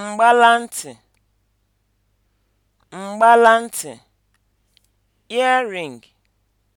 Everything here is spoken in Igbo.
mgbalantị mgbalantị earring